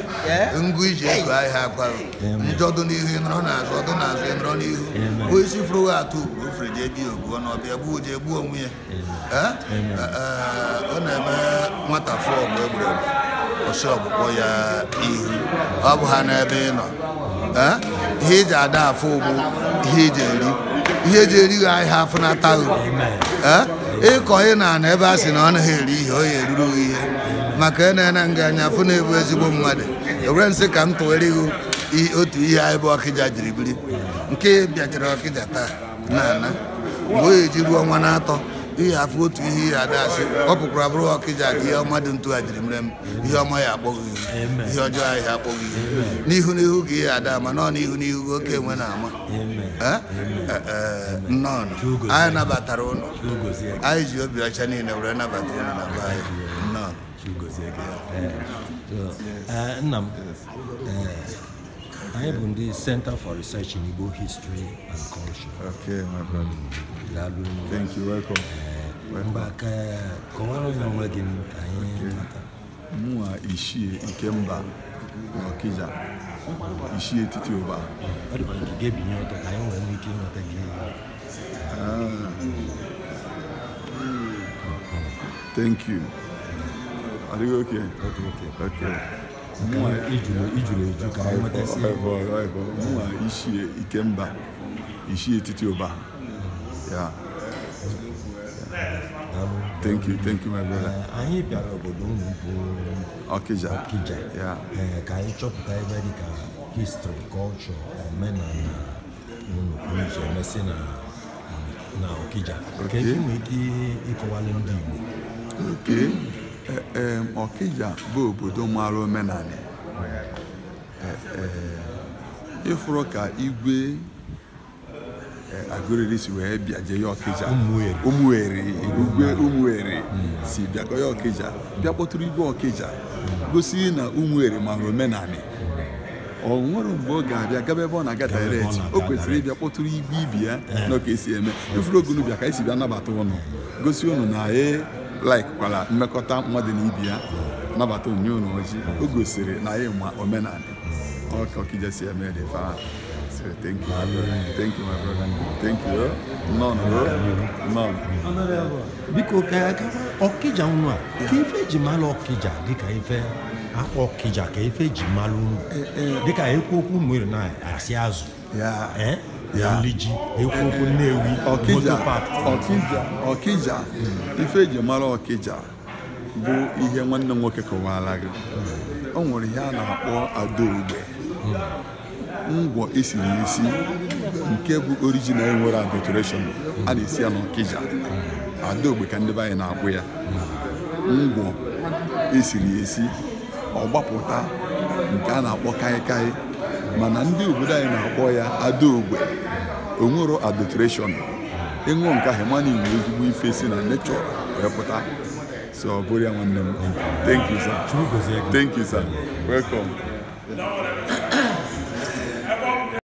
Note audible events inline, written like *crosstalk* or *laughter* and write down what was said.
*laughs* ngụ iji ego ahịa akwarụ njọdụ n'ihu ịnọrọ n'azụ ọdụ n'azụ ịnọrọ n'ihu bụ isi fụrụ atụ ugboro ofere jee bie oguo na ọbịa gbuo jee gbuo onwe ya eh? Eh, eh, ọ na-eme nwata fụọ ọgụ e ọsị ọgbụgbọ ya ihu ọ bụ ha n'ebe ị nọ ihe eji ada afụ ụgbụ ihe eji eri ihe eji erighị ahịa afụnataghị ịkọ ị na-ana ebe a sị na ọ naghị eri ihe ọ ya eruru maka na-ena nga anya afụ na-ebu ezigbo mmadụ ewere nsị ka m tụwere gị otu ihe anyị bụ ọkịja jiri biri nke bịachara ọkịja taa na ana mgbe o e ji ruo ọnwa na-atọ ihe afụ otu ihe ihe ada asị ọ pụkwara abụrụ ọkịja ka ihe ọma dị ntu a jiri mere m ihe ọma ya akpọghị ihe ọjọọ ahịa akpọghị n'ihu n'ihu ka ihe ada ama nọọ n'ihu n'ihu oke enwe na-ama nnọọ anyị nabatara ụlọ anyị ji obi ọcha niile were nabata ụlọ na be anyị nnọọ nna m eh, anyị bụ ndị center for research in igbo history and culture okay my brother daalụ thank you welcome eh, mba ka eh, kọwara onye onwe gị anyị mata mụnwa ichie nke mba n'ọkịja ichie etiti ụba ọ dịkwa nke ga-ebinye ọtọ ka anyị ah. Thank you. adịghị oke mụnwa etiti ụba ya thank you thank you my brother eh, anyị bịara obodo unu bụ ọkịja ka anyị chọpụta ebe dị ka history culture omenala unu pụrụ iche na ọkịja ka nwee ike ndị ee eh, eh, Ọkịja bụ obodo mara omenala eh, ịfụrụ ka igwe Agụriri si wee bịa jee ya Ọkịja Ụmụeri igwe Ụmụeri hmm. si bịakọ ya Ọkịja bịa kpọtụrụ igwe Ọkịja gosi na Ụmụeri mara omenala ọ nwere mgbe ọ ga-abịa gaba ebe ọ na-aga direct o kwesịrị ịbịa kpọtụrụ igwe ibi ya na ka esi eme ifuru ogunu bịa ka esi bịa nabata ụnụ gosi ụnụ na ee laikkwara mmekọta mmadụ na ibi ya nabata onyinye unu ojii o gosiri na anyị ma omenala eme dị fa thank you, Thank you, Biko ka Ọkịja a ka ife ji malụ Ọkịja dịka ife akpọ Ọkịja ka ife ji malụ eh, eh. dịka ekwu okwu na asị azụ Nliji Ekwuokwu Nnewi Ọkịja Ọkịja ife eji mara Ọkịja bụ ihe nwanne m nwoke kọwara gị o nwere ihe a na-akpọ adaogbe ngwọ esiri esi nke bụ orijinal nwere adulteration a na-esi ya n'Ọkịja adaogbe ka ndị be anyị na-akpụ ya ngwọ esiri esi ọgbapụta nke a na-akpọ kaịkaị mana ndị obodo anyị na-akpọ ya adaogbe onwero adulteration ịṅụ nke ahụ mana ezigbo ife si na nechọ wee pụta so ọ bụrụ ya nwanne m thank you sir thank you sir welcome